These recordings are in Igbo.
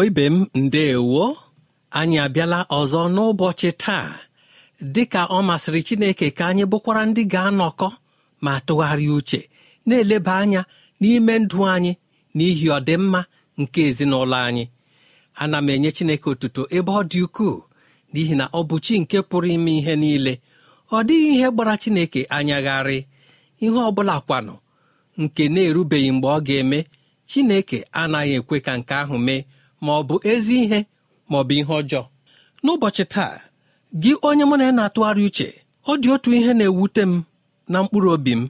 Igbo ibe m ndeewo anyị abịala ọzọ n'ụbọchị taa dịka ọ masịrị Chineke ka anyị bụkwara ndị ga-anọkọ ma tụgharịa uche na-eleba anya n'ime ndụ anyị n'ihi ọdịmma nke ezinụlọ anyị ana m enye Chineke otuto ebe ọ dị ukwuu n'ihi na ọ bụ chi nke pụrụ ime ihe niile ọ dịghị ihe gbara Chineke anyagharị ihe ọ bụla kwanụ nke na-erubeghị mgbe ọ ga-eme Chineke anaghị ekwe ka nke ahụ mee ma ọ bụ ezi ihe ma ọ bụ ihe ọjọọ n'ụbọchị taa gị onye mụ na ya na-atụgharị uche ọ dị otu ihe na-ewute m na mkpụrụ obi m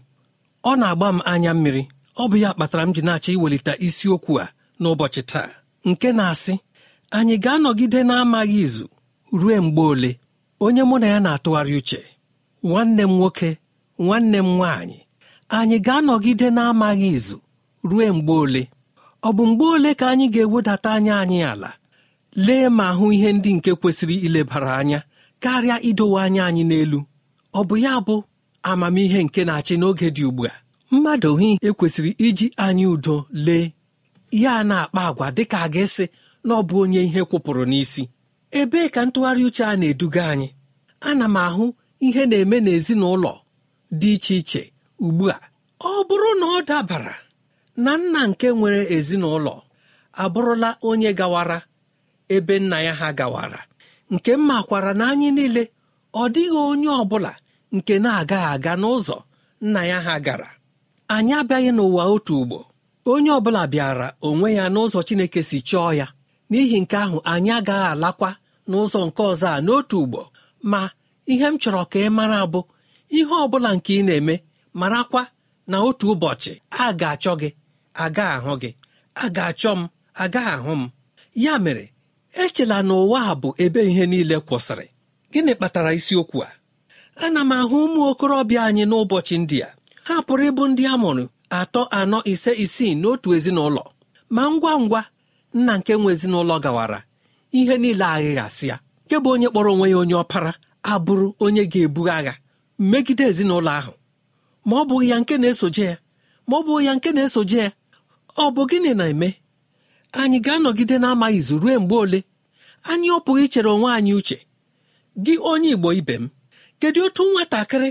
ọ na-agba m anya mmiri ọ bụ ya kpatara m ji na-achọ iwelite isiokwu a n'ụbọchị taa nke na-asị anyị ga-anọgide na-amaghị izu ruo mgbe ole onye mụ na ya na-atụgharị uche nwanne m nwoke nwanne m nwaanyị anyị ga-anọgide na-amaghị izu ruo mgbe ole ọ bụ mgbe ole ka anyị ga-ewedata anya anyị ala lee ma hụ ihe ndị nke kwesịrị ilebara anya karịa idowe anya anyị n'elu ọ bụ ya bụ amamihe nke na-achị n'oge dị ugbu a mmadụ hị ekwesịrị iji anyị udo lee ya na-akpa agwa dịka a ga-esi na ọ bụ onye ihe kwụpụrụ n'isi ebee ka ntụgharị uche a na-eduga anyị ana m ahụ ihe na-eme n'ezinụlọ dị iche iche ugbu a ọ bụrụ na ọ dabara na nna nke nwere ezinụlọ abụrụla onye gawara ebe nna ya ha gawara nke m makwara na anyị niile ọ dịghị onye ọ bụla nke na-agaghị aga n'ụzọ nna ya ha gara anyị abịaghị n'ụwa otu ugbo onye ọ bụla bịara onwe ya n'ụzọ Chineke si chọọ ya n'ihi nke ahụ anyị agaghị alakwa n'ụzọ nke ọzọ a n'otu ugbo ma ihe m chọrọ ka ị mara bụ ihe ọ bụla nke ị na-eme marakwa na otu ụbọchị a ga-achọ gị aga ahụ gị a ga-achọ m aga ahụ m ya mere echela na ụwa a bụ ebe ihe niile kwụsịrị gịnị kpatara isiokwu a ana m ahụ ụmụ okorobịa anyị n'ụbọchị ndị a ha pụrụ ịbụ ndị a mụrụ atọ anọ ise isii n'otu ezinụlọ ma ngwa ngwa nna nke nwe ezinụlọ gawara ihe niile aghịghasịa nke bụ onye kpọrọ onwe ya onye ọpara abụrụ onye ga-ebu agha megide ezinụlọ ahụ ma ọ bụghị ya nke na-esoje ya ma ọ bụghị ya nke na-esoje ya ọ bụ gịnị na-eme anyị ga-anọgide na-amaghị izu ruo mgbe ole anyị ọ pụghị ichere onwe anyị uche gị onye igbo ibe m kedu otu nwatakịrị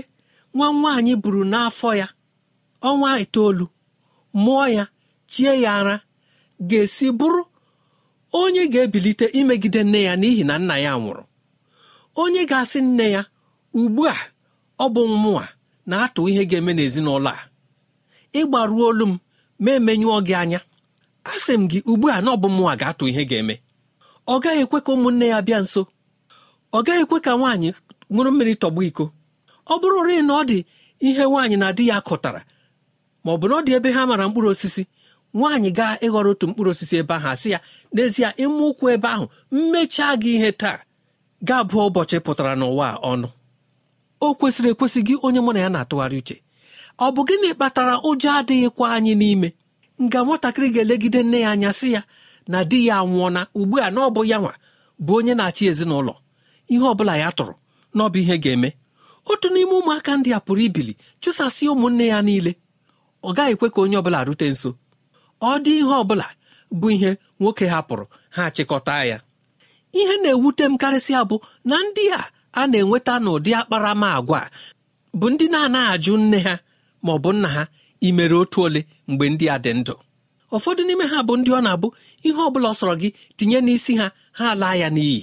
nwa nwaanyị buru n'afọ ya ọnwa itoolu mụọ ya chie ya ara ga-esi bụrụ onye ga-ebilite imegide nne ya n'ihi na nna ya nwụrụ onye ga-asị nne ya ugbu a ọ bụ mmụọ na-atụ ihe ga-eme n'ezinụlọ a ịgbaruo olu m ma emenyụọ gị anya a sị m gị ugbu a na ọbụmnwa ga-atụ ihe ga-eme ọ gaghị ekwe ka ụmụnne ya bịa nso ọ gaghị ekwe ka nwaanyị ṅụrụ mmiri tọgbọ iko ọ bụrụrị na ọ dị ihe nwaanyị na di ya kụtara ma ọ bụ na ọ dị ebe ha mara mkpụrụ osisi nwaanyị gaa ịghọrọ otu mkpụrụ osisi ebe ahụ asị ya n'ezie ịmụ ụkwụ ebe ahụ mmechaa gị ihe taa Gaa bụọ ụbọchị pụtara n'ụwa ọnụ o kwesịrị ekwesị gị onye mụ na ya na-atụgharị uche ọ bụ gịnị kpatara ụjọ adịghịkwa anyị n'ime nga nwatakịrị ga-elegide nne ya anya sị ya na di ya anwụọna ugbu a na ọ bụ ya nwa bụ onye na-achị ezinụlọ ihe ọ bụla ya tụrụ na ọ bụ ihe ga-eme otu n'ime ụmụaka ndị a pụrụ ibili chụsasị ụmụnne ya niile ọ gaghị ekwe ka onye ọbụla rute nso ọ dị ihe ọbụla bụ ihe nwoke hapụrụ ha chịkọta ya ihe na-ewute m karịsịa bụ na ndị a a na-enweta n'ụdị akparamagwa bụ ndị na-anaghị ajụ nne ha ma ọ bụ nna ha imere otu ole mgbe ndị a dị ndụ ụfọdụ n'ime ha bụ ndị ọ na-abụ ihe ọ bụla ọ sọrọ gị tinye n'isi ha ha laa ya n'iyi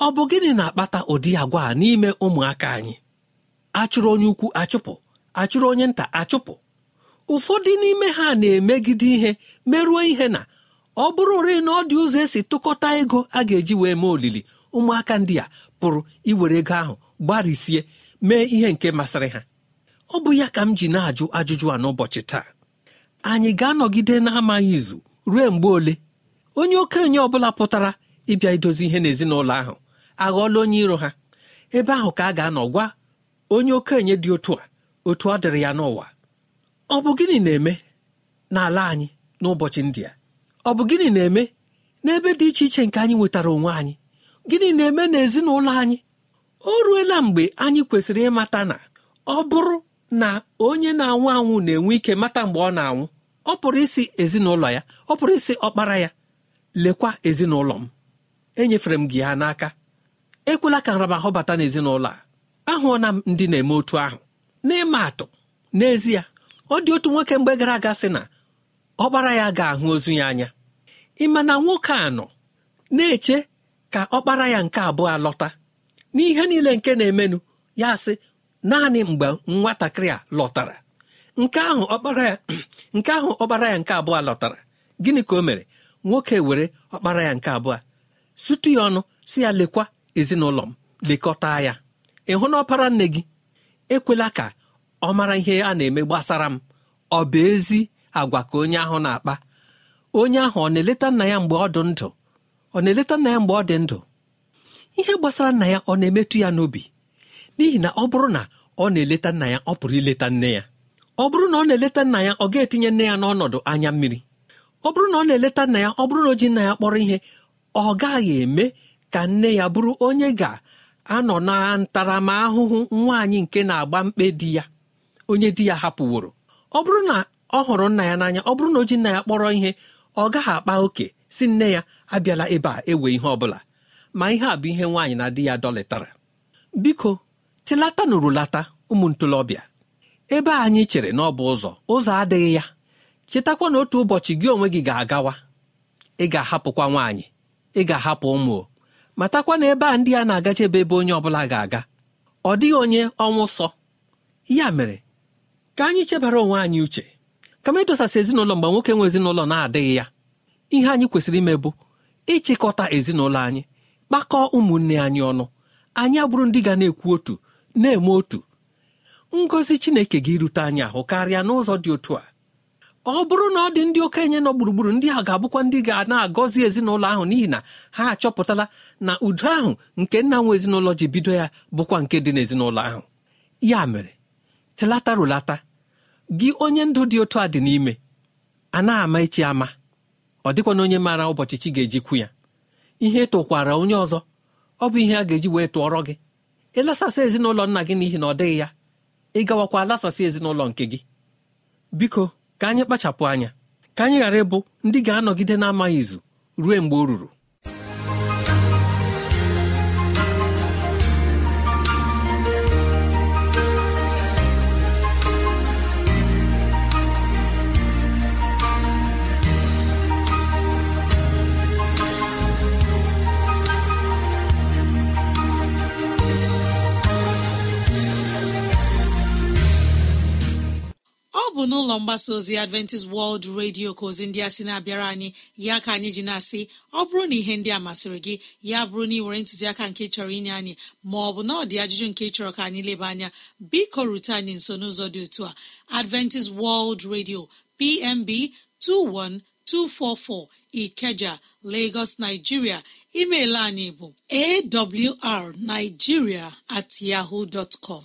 ọ bụ gịnị na-akpata ụdị agwa a n'ime ụmụaka anyị achụrụ onye ukwu achụpụ achụrụ onye nta achụpụ ụfọdụ n'ime ha na-emegide ihe merụọ ihe na ọ bụrụ ore na ọ dị ụzọ esi tụkọta ego a ga-eji wee mee olili ụmụaka ndị a pụrụ iwere ego ahụ gbarisie mee ihe nke masịrị ha ọ bụ ya ka m ji na-ajụ ajụjụ a n'ụbọchị taa anyị ga-anọgide na-amaghị izu ruo mgbe ole onye okenye ọ bụla pụtara ịbịa idozi ihe n'ezinụlọ ahụ aghọọla onye iro ha ebe ahụ ka a ga-anọ gwa onye okenye dị otu a otu ọ dịrị ya n'ụwa ọ bụ gịnị na-eme n'ala anyị n'ụbọchị ndị a ọ bụ gịnị na-eme n'ebe dị iche iche nke anyị nwetara onwe anyị gịnị na-eme n'ezinụlọ anyị o ruela mgbe anyị kwesịrị ịmata na ọ bụrụ na onye na-anwụ anwụ na-enwe ike mata mgbe ọ na-anwụ ọ pụrụ isi ezinụlọ ya ọ pụrụ isi ọkpara ya lekwa ezinụlọ m enyefere m gị ha n'aka ekwela ka nramahụ bata n'ezinụlọ a ahụọna m ndị na-eme otu ahụ n'ịma atụ n'ezie ọ dị otu nwoke mgbe gara aga sị na ọkpara ya ga-ahụ ozu ya anya ịma na nwoke a nọ na-eche ka ọkpara ya nke abụọ alọta n'ihe niile nke na-emenụ ya sị naanị mgbe nwatakịrị a lọtara nke ahụ ọkpara ya nke ahụ ọkpara ya nke abụọ lọtara gịnị ka o mere nwoke were ọkpara ya nke abụọ sutu ya ọnụ si ya lekwa ezinụlọ m lekọta ya ịhụ na ọpara nne gị ekwela ka ọ mara ihe a na-eme gbasara m ọ bụ ezi agwa ka onye ahụ na-akpa onye ahụ ọ na-eleta nna ya mgbe ọ dị ndụ ọ na-eleta nna ya mgbe ọ dị ndụ ihe gbasara nna ya ọ na-emetụ ya n'obi n'ihi na ọ bụrụ na ọ na-eleta nna ya ọ pụrụ ileta nne ya ọ bụrụ na ọ na-eleta nna ya ọ ga-etinye nne ya n'ọnọdụ anya mmiri ọ bụrụ na ọ na-eleta nna ya ọ bụrụ na o ji nna ya kpọrọ ihe ọ gaghị eme ka nne ya bụrụ onye ga-anọ na ntaramahụhụ nwaanyị nke na-agba mkpe di ya onye di ya hapụworo ọ bụrụ na ọ hụrụ nna ya n'anya ọ bụrụ na o ji nna ya kpọrọ ihe ọ gaghị akpa oke si nne ya abịala ebe a ewe ihe ọ bụla ma ihe a bụ ihe nwaanyị na di ya dọlịtara biko tilata na ụmụ ntolobịa ebe anyị chere na ọ bụ ụzọ ụzọ adịghị ya chetakwa na otu ụbọchị gị onwe gị ga-agawa ị ga-ahapụkwa nwaanyị ị ga-ahapụ ụmụ matakwa na ebe a ndị a na-agachebe ebe onye ọbụla ga-aga ọ dịghị onye ọnwụ sọ ya mere ka anyị chebara onwe anyị uche kama ịdosasị ezinụlọ mgbe nwoke nwe ezinụlọ na-adịghị ya ihe anyị kwesịrị ime bụ ịchịkọta ezinụlọ anyị kpakọọ ụmụnne anyị ọnụ anyị abụrụ ndị ga na-ekwu otu na-eme otu ngọzi chineke gị rute anyị ahụ karịa n'ụzọ dị otu a ọ bụrụ na ọ dị ndị okenye nọ gburugburu ndị a ga-abụkwa ndị ga na-agọzi ezinụlọ ahụ n'ihi na ha achọpụtala na udo ahụ nke nna nwe ezinụlọ ji bido ya bụkwa nke dị n'ezinụlọ ahụ ya mere telata rụlata gị onye ndụ dị otu a dị n'ime a na-ama echi ama ọ dịkwa na onye maara ụbọchị chi ga-eji ya ihe tụkwara onye ọzọ ọ bụ ihe a ga-eji wee tụọrọ gị ịlasasị ezinụlọ nna gị n'ihi na ọ dịghị ya ịgawakwa lasasị ezinụlọ nke gị biko ka anyị kpachapụ anya ka anyị ghara ịbụ ndị ga-anọgide na-amaghị izu ruo mgbe o ruru bụ n'ụlọ mgbasa ozi adventist world radio ka ozi ndị a sị na-abịara anyị ya ka anyị ji na-asị ọ bụrụ na ihe ndị a masịrị gị ya bụrụ na ị nwere ntụziaka nke chọrọ inye anyị ma ọ bụ na ọ dị ajụjụ nke chọrọ ka anyị leba anya biko rute anyị nso n'ụzọ dị otu a adventist world radio pmb 21244 ikeja lagos nigeria email anyị bụ awr at yahoo dọtcom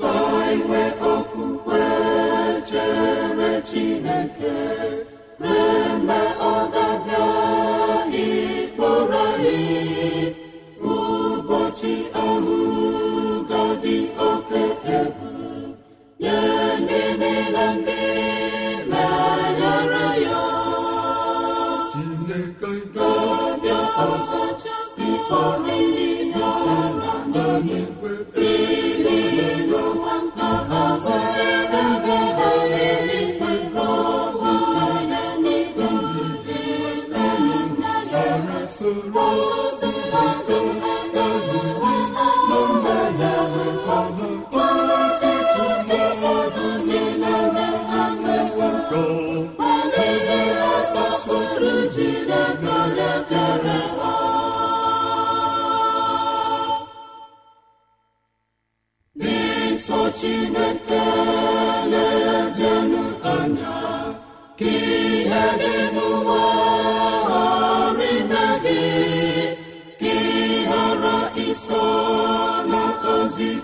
ka inwe okwukwe chere Chineke ree mgbe ọ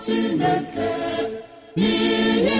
chineke n'ihe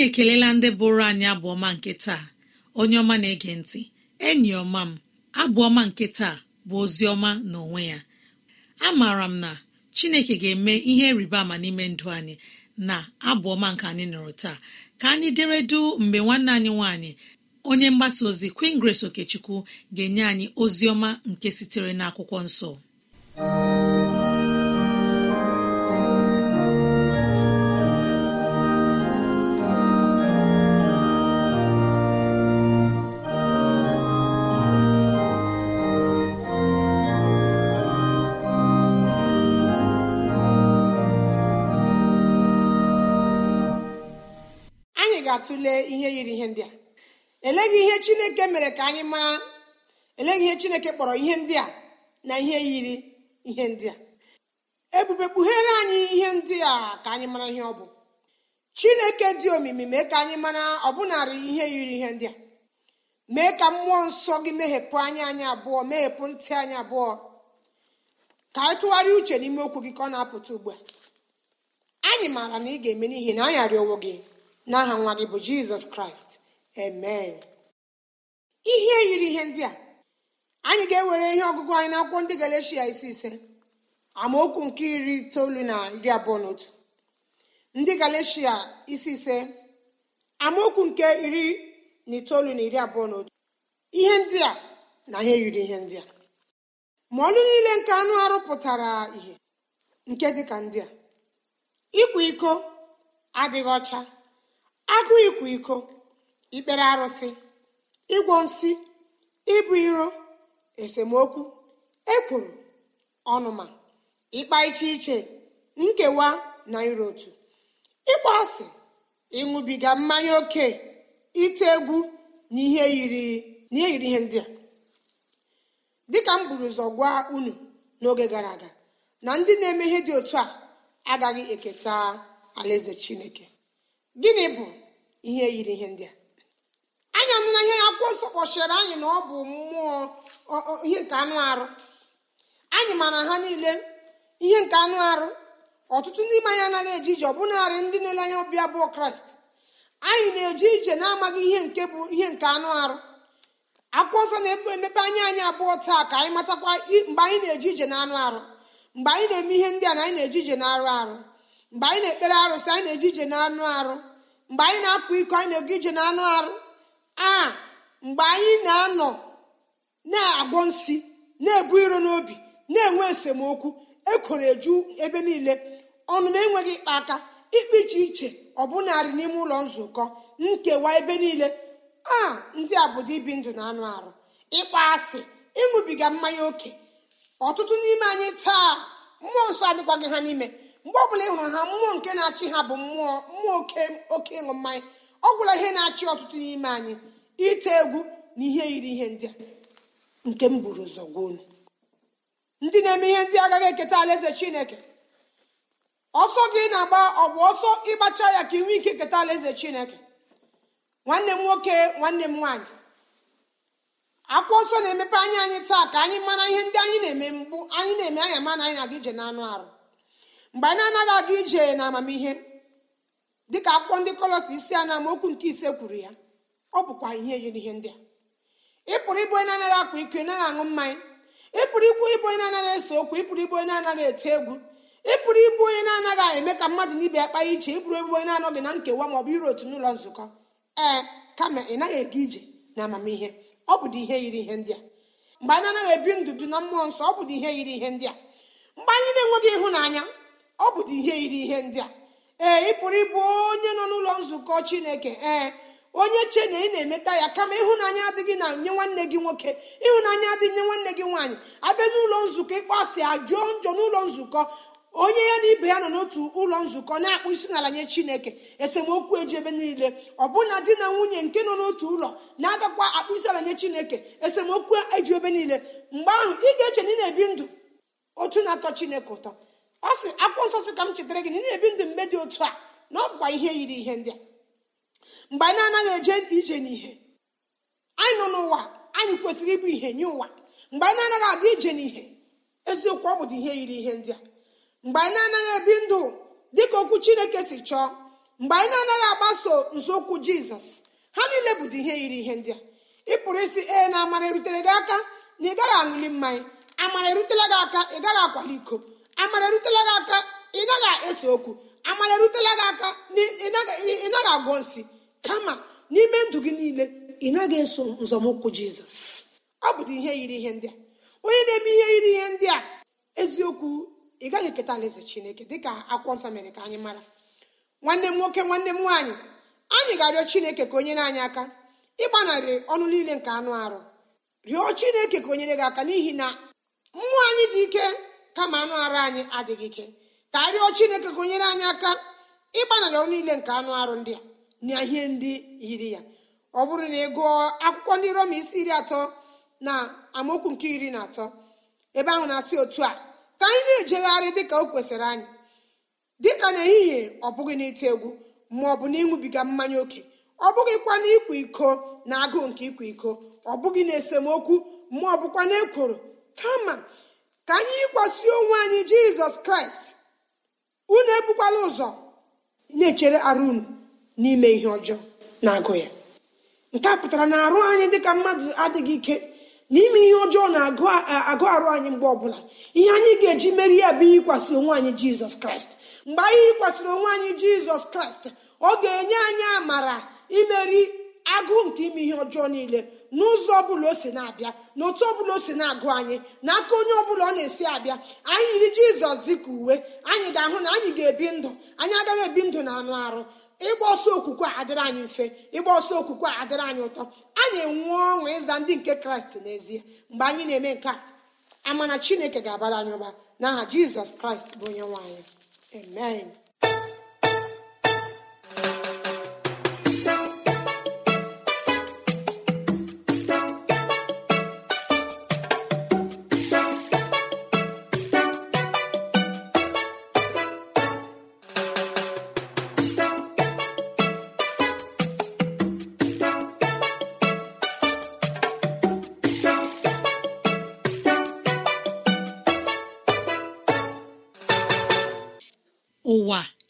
anyị ekelela ndị bụrụ anyị abụọma nke taa onye ọma na-ege ntị enyi ọma m abụọma nke taa bụ ozi ọma na onwe ya amaara m na chineke ga-eme ihe rịba ama n'ime ndụ anyị na abụọma nke anyị nọrọ taa ka anyị dere du mgbe nwanne anyị nwanyị onye mgbasa ozi Queen Grace Okechukwu ga-enye anyị ozi ọma nke sitere n'akwụkwọ nsọ tụlee ihe yiri ihe ndị a eleghị ihe chineke mere ka anyị mara eleghị ihe chineke kpọrọ ihe ndị a na ihe yiri ihe ndị a ebube kpughere anyị ihe ndị a ka anyị mara ihe ọ bụ chineke dị omimi mee ka anyị mara ọbụnarị ihe yiri ihe ndị a mee ka mmụọ nsọ gị meghepụ anya anyị abụọ meghepụ ntị anyị abụọ ka anyị tụgharịa uche n'ime okwu gị ka ọ na-apụta ugbu a anyị maara na ị ga-eme n'ihi na anyị arịọwo gị n'aha nwa gị bụ jizọs kraịst emen ihe yiri ihe ndị a anyị ga-ewere ihe ọgụgụ anyị n'akwụkwọ ndị galeshia isi ise amaokwu nke iri itoolu na iri abụọ na ndị galeshia isi ise amaokwu nke iri na itoolu na iri abụọ na otu ihe ndị a na ihe yiri ihe ndị a ma ọlụ niile nke anụ arụ pụtara ihe nke dịka ndị a ịkwa iko adịghị ọcha agụ ịkwa iko ikpere arụsị ịgwọ nsị ịbụ iro esemokwu ekwuru ọnụma ịkpa iche iche nkewa na iro otu ịkpọ asị ịṅụbiga mmanya oke ite egwu na ihe yiri ihe ndị a dịka m buru ụzọ gwa unu n'oge gara aga na ndị na-eme dị otu a agaghị eketa alaeze chineke gịnị bụ ihe yiri ihe ndị a anyị anụ na ihe akwụkwọ nsọ kpọchiri anyị na ọ bụ mmụọ ihe nke anụ arụ anyị mara ha niile ihe nke anụ arụ ọtụtụ ndị ime anyị anaghị eje ije ọbụnarị ndị na-ele anya ọbịa bụ kraịst anyị na eji ije na-amaghị ihe nke bụ ihe nke anụ arụ akwụkwọ nsọ na-emepe emepe anya anyị abụọ taa ka anyị matakwa mgbe anyị na eji ije na anụ arụ mgbe anyị na-eme ihe ndị a na anyị na eji ije na arụ arụ mgbe anyị na-ekpere arụsị anyị na eji ije n'anụ arụ mgbe anyị na akpụ iko anyị na-ege ije na anụ arụ a mgbe anyị na-anọ na-agwọ nsi na-ebu iro n'obi na-enwe esemokwu ekwere eju ebe niile ọnụ na-enweghị ịkpa aka ikpe iche iche ọ ọbụnarị n'ime ụlọ nzukọ nkewa ebe niile a ndị a bụ ibi ndụ na anụ arụ ịkpa asị ịṅụbiga mmanya ókè ọtụtụ n'ime anyị taa mmụọ nsọ adịkwaghị ha n'ime mgbe bụla ị hụrụ ha mmụọ nke na-achị ha bụ mmụọ mmụọ oke oke ịṅụ mmanya ọ gwụla ihe na-achị ọtụtụ n'ime anyị ite egwu na ihe yiri ihe ndị a nke m buru ụzọ ndị na-eme ihe ndị agaghị eketa alaeze chineke ọsọ gị na-agba ọ bụ ọsọ ịgbacha ya ka ị ike keta alaeze chineke nwanne m nwoke nwanne m nwaanyị akwụkwọ ọsọ na-emepe anya anyị taa ka anyị mara ihe ndị anyị na-eme mbụ anyị na-eme anya mana anyị na-adị ije n'anụ arụ mgbe anyị anaghị aga ije na amamihe dịka akwụkwọ ndị kọlọs isi a na nke ise kwuru ya ọ bụkwa ihe yiri ihe ndị a ị pụrụ ịbụ onye anaghị akpa ike naghị aṅụ mmanya Ịpụrụ pụrụ ikwu ịbụ onye na-anaghị ese okwu Ịpụrụ ịbụ onye na-anaghị ete egwu ịpụrụ ịbụ onye na-anaghị eme ka mmadụ na ibe ya kpaa iche ịpụrụ ebụ onye na-anọghị na nkewa ma ọ bụ iru otu n'ụlọ nzukọ ee kama ị naghị aga ije na amamihe ọ ihe yiri ihe ndị a mgbe anyị anaghị ebi ndụ na mmụọ nsọ ọ bụ ihe yiri ihe ndị a mgbe anyị na-enweghị ịhụnanya ọ bụdị ihe yiri ihe ndị a ee ị pụrụ ịbụ onye nọ n'ụlọ nzukọ chineke ee onye che na ị na-emeta ya kama ịhụnanya adịghị na nye nwanne gị nwoke ịhụnanya adịghị nye nwanne gị nwaanyị abịa n'ụlọ nzukọ ịkpọasị ajụọ njọ n'ụlọ nzukọ onye ya na ibe ya nọ n'otu ụlọ nzukọ na-akpụ isi n'ala nye chineke esemokwu eji ebe niile ọbụna di na nwunye nke nọ n'otu ụlọ na-agakwa akpụ isi ala nye chineke esemokwu eji ebe niile mgbe ahụ ị ga-eche na ị na-ebi ndụ otu na-atọ chineke ụtọ ọ sị akwụkwọ nsọ sị ka m chetara gị na ị na-ebi ndụ mgbe dị otu a na ọ bụkwa ihe yiri ihe ndị a mgbe anyị na-anaghị eje ije n'ihe anyị nọ n'ụwa anyị kwesịrị ịbụ ihe nye ụwa mgbe anyị na-anaghị ije n'ihe eziokwu ọ bụdị ihe yiri ihe ndị a mgbe anyị na-anaghị ebi ndụ dị ka okwu chineke si chọọ mgbe anyị na-anaghị agbaso nzọụkwụ jizọs ha niile bụdị ihe yiri ihe ndị a ị pụrụ isi ee na amara erutere gị aka na ị gaghị aṅụli mmanya amara erutela gị aka ị gaghị akwali iko amara erutela gị aka ị naghị ese okwu amara erutela gị aka ị naghị agwọ nsị kama n'ime ndụ gị niile ị naghị eso nzọmụkwụ jizọs ọ bụdị ihe yiri ihe ndị a onye na-eme ihe yiri ihe ndị a eziokwu ị gaghị eketa alaeze chineke dịka akwụkwọ nsọ mere ka anyị mara nwanne m nwoke nwanne m nwaanyị anyị ga-arịọ chineke ka onye na anyị aka ịgbanarị ọnụ niile nke anụ arụ rịọ chineke ka o nyere gị aka n'ihi na mmụọ anyị dị ike kama anụ arụ anyị adịghị ike ka arịọ chineke gụnyere anyị aka ịgbanarị ọrụ niile nke anụ arụ ndị a na ihe ndị yiri ya ọ bụrụ na ị gụọ akwụkwọ ndị roma isi iri atọ na amaokwu nke iri na atọ ebe ahụ na-asị otu a ka anyị na-ejegharị dịka o kwesịrị anyị dịka n'ehihie ọ bụghị n'ite egwu ma ọ bụ na ịṅụbiga mmanya oke ọ bụghị na ịkwa iko na agụụ nke ịkwa iko ọ bụghị na esemokwu ma ọ bụkwa na ekworo kama ka anyị yikwasị onwe anyị jizọs kraịst unu ebukwala ụzọ na-echere arụ unu n'ime ihe ọjọọ na-agụ ya nke a pụtara na arụ anyị dịka mmadụ adịghị ike n'ime ihe ọjọọ na-agụ arụ anyị mgbe ọbụla ihe anyị ga-eji meri ya bụ yikwasị onwe anyị jizọs kraịst mgbe anyị yikwasịrị onwe anyị jizọs kraịst ọ ga-enye anyị amara imeri agụụ nke ime ihe ọjọọ niile n'ụzọ ọbụla o si na-abịa n'otu ọ ọbụla o si na-agụ anyị n'aka onye ọbụla ọ na-esi abịa anyị yiri jizọs dịka uwe anyị ga-ahụ na anyị ga-ebi ndụ anyị agaghị ebi ndụ na anụ arụ ịgba ọsọ okwukwe a adịrị anyị mfe ịgba ọsọ okwukwe a adịrị anyị ụtọ anyị enwe ọṅụ ịza ndị nke kraịst n'ezie mgbe anyị na-eme nke a amana chineke ga-abara anyị ụba n'aha jizọs kraịst bụ onye nwaanyị amen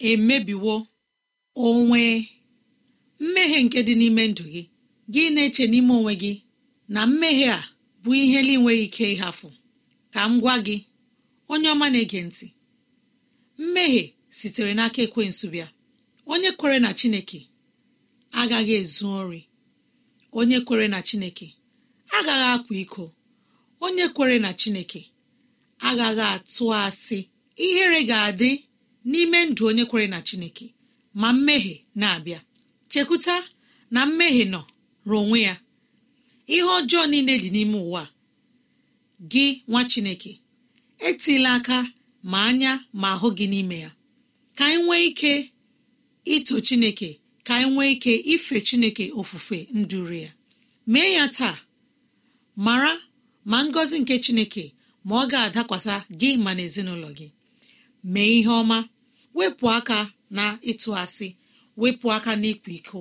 emebiwo onwe mmehie nke dị n'ime ndụ gị gị na-eche n'ime onwe gị na mmehie a bụ ihe na-enweghị ike ịhafụ ka m gwa gị onye ọma na-ege ntị mmehie sitere n'aka ekwe bịa onye kwere na chineke agaghị ezu ori onye kwere na chineke agaghị akwa iko onye kwere na chineke agaghị atụ asị ihere ga-adị n'ime ndụ onye kwere na chineke ma mmehie na-abịa chekwuta na mmehie nọ rụọ onwe ya ihe ọjọọ niile dị n'ime ụwa gị nwa chineke etila aka ma anya ma ahụ gị n'ime ya ka anyị nwee ike ito chineke ka anyị nwee ike ife chineke ofufe nduru ya mee ya taa mara ma ngọzi nke chineke ma ọ ga-adakwasa gị ma na ezinụlọ gị mee ihe ọma wepụ aka na ịtụ asị wepụ aka na ịkwa iko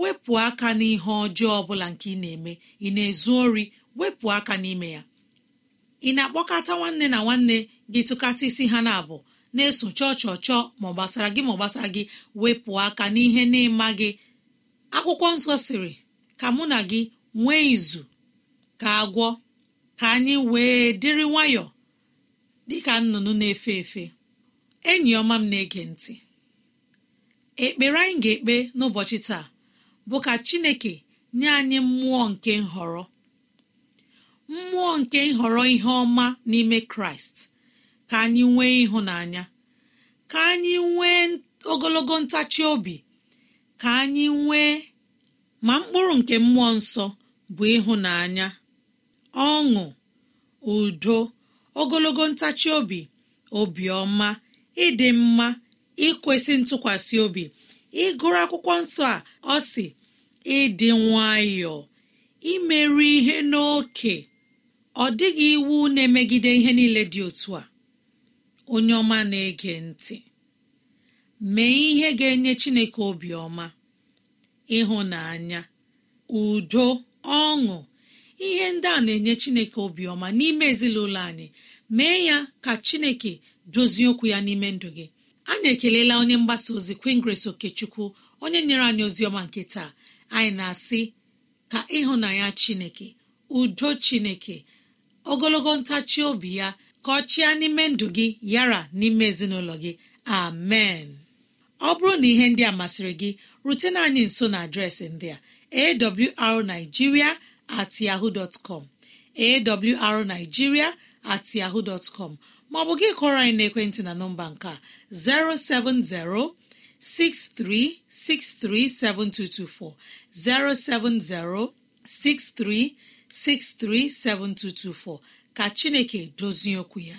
wepụ aka n'ihe ọjọọ ọbụla nke ị na-eme ị na-ezu ori wepụ aka n'ime ya ị na-akpọkọta nwanne na nwanne gị tụkata isi ha na-abụ na-eso chọọ chọọ chọọ ma ọ gbasara gị ma ọ gbasara gị wepụ aka n'ihe na-ịma gị akwụkwọ nsọ sịrị ka mụ na gị nwee izu ka agwọ ka anyị wee dịrị nwayọọ dịka nnụnụ na-efe efe enyi ọma m na-ege ntị ekpere anyị ga-ekpe n'ụbọchị taa bụ ka Chineke nye anyị mmụọ nke nhọrọ mmụọ nke nhọrọ ihe ọma n'ime Kraịst ka anyị nwee ịhụnanya ka anyị nwee ogologo ntachi obi ka anyị nwee ma mkpụrụ nke mmụọ nsọ bụ ịhụnanya ọṅụ udo ogologo ntachi obi obiọma ịdị mma ikwesị ntụkwasị obi ịgụrụ akwụkwọ nsọ a ọ si ịdị nwayọọ imerụ ihe n'oke ọ dịghị iwu na-emegide ihe niile dị otu a onye ọma na-ege ntị mee ihe ga-enye Chineke obiọma ịhụnanya udo ọṅụ ihe ndị a na-enye Chineke obiọma n'ime ezinụlọ anyị mee ya ka Chineke dozie okwu ya n'ime ndụ gị anyị ekelela onye mgbasa ozi queen grace okechukwu onye nyere anyị ozi ọma nke taa anyị na-asị ka ịhụnanya chineke udo chineke ogologo ntachi obi ya ka ọ chịa n'ime ndụ gị yara n'ime ezinụlọ gị amen ọ bụrụ na ihe ndị a masịrị gị rutena anyị nso na adreesị ndị a awrnigeria at com at dtcom maọbụ gị kọrọ anyị n'ekwentị na nọmba nke a 07063637224 7224 ka Chineke dozie okwu ya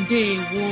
mbe gwo